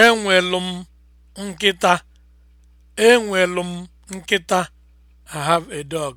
Enwelu m nkịta. Enwelu m nkịta. I have a dog.